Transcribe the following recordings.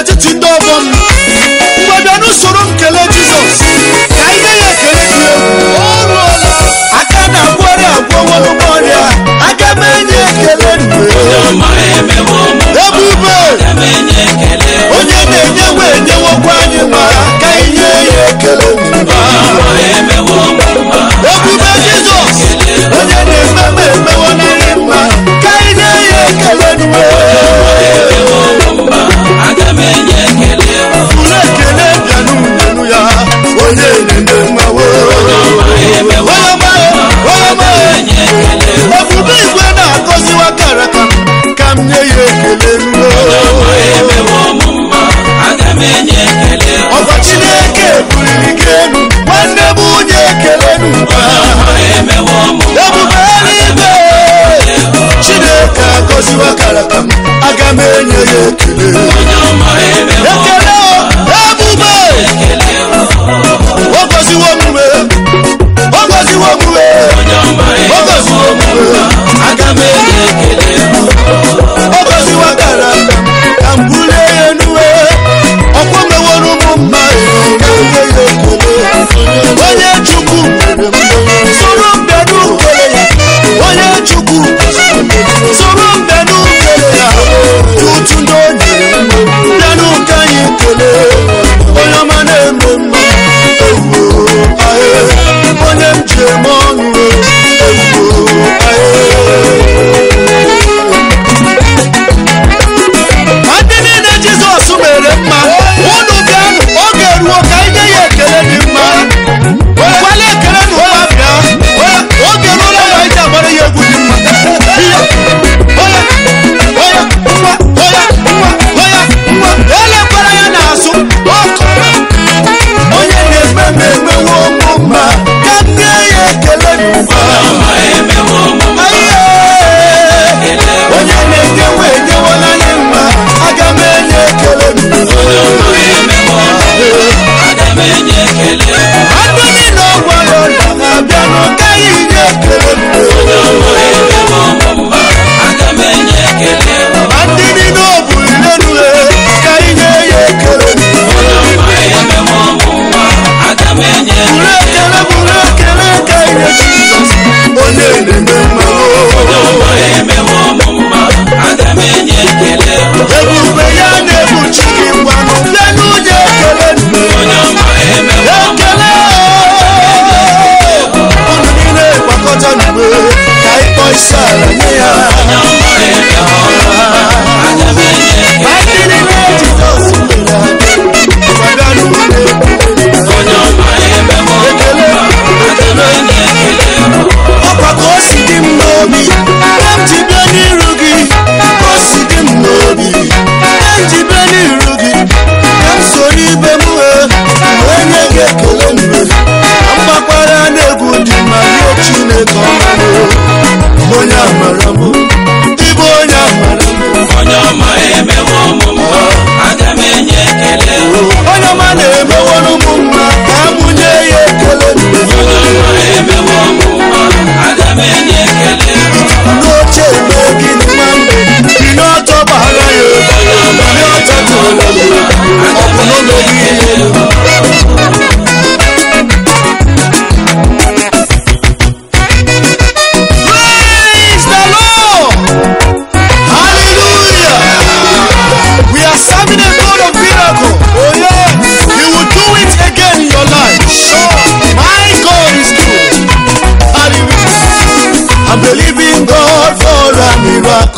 n'etiti ndị ọgọ m mgbe n'usoro m jizọs ka ihe ya ekele dị egwu aka na-agwọrị agwọwo n'ụgbọ ọrịa aga m enye ekele ebube onye na-enyewe enyewokwa anyị mara ka ihe ya ekele fogo,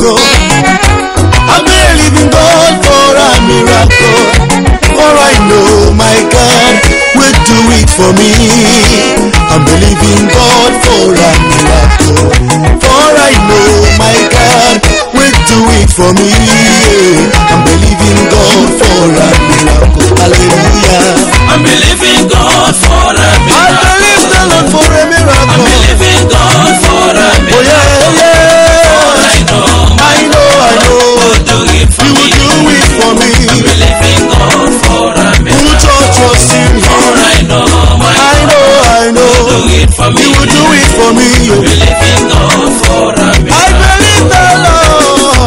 miracle. I'm believing God for a miracle. For I know my God will do it for me. I'm believing God for a miracle. For I know my God will do it for me. mi believe in God for a miracle.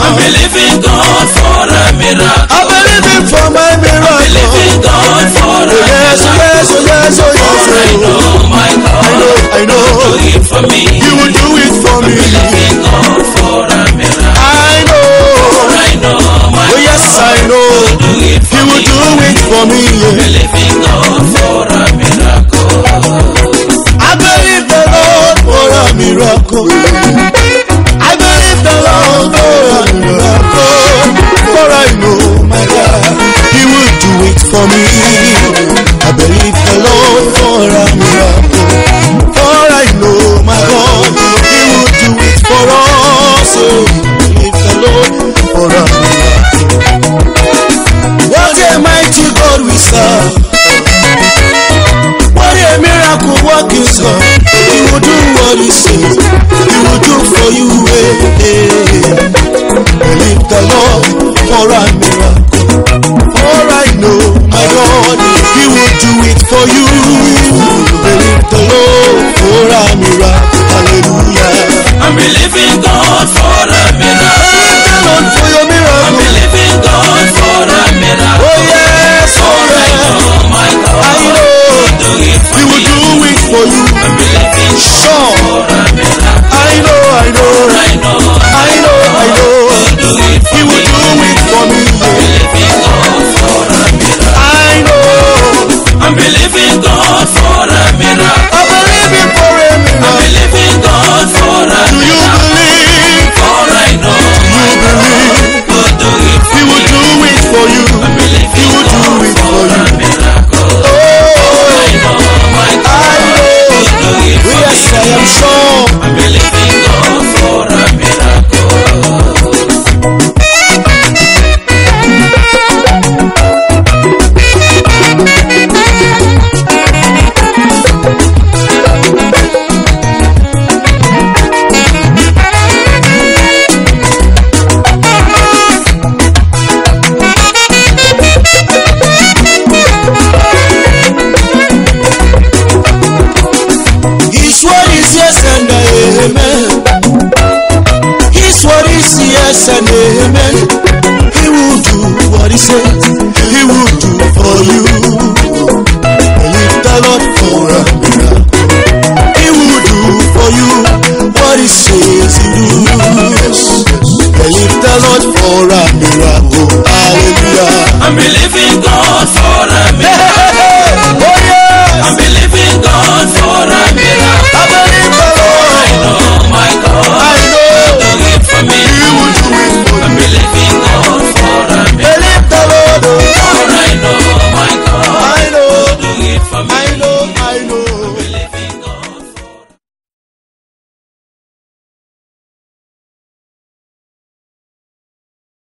I believe in God for a miracle. I believe in for my miracle. I believe in God for a miracle. Yes, yes, oh, yes, oh yes. For I oh. know my God. I know, I know. He will do it for me. He will do it for me. I believe in God for a miracle. I know. For I know my oh, yes, God. I know. He will do it for You will do it for me. oh will do what he says. He will do for you. eh? hey. Believe the Lord for a miracle. For I know my God, He will do it for you. believe. yes and amen. He will do what he says, he will do for you. Believe the Lord for a miracle. He will do for you what he says he will do. Believe the Lord for a miracle.